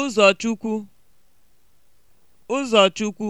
Ụzọchukwu Ụzọchukwu